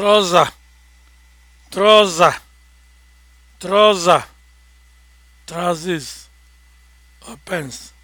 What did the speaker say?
trọza troza trọza trousers opens